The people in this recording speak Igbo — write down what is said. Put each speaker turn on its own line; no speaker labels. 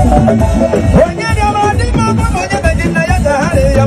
onye yeah, yeah, dị mma ọgwa yeah, onye be gị na ya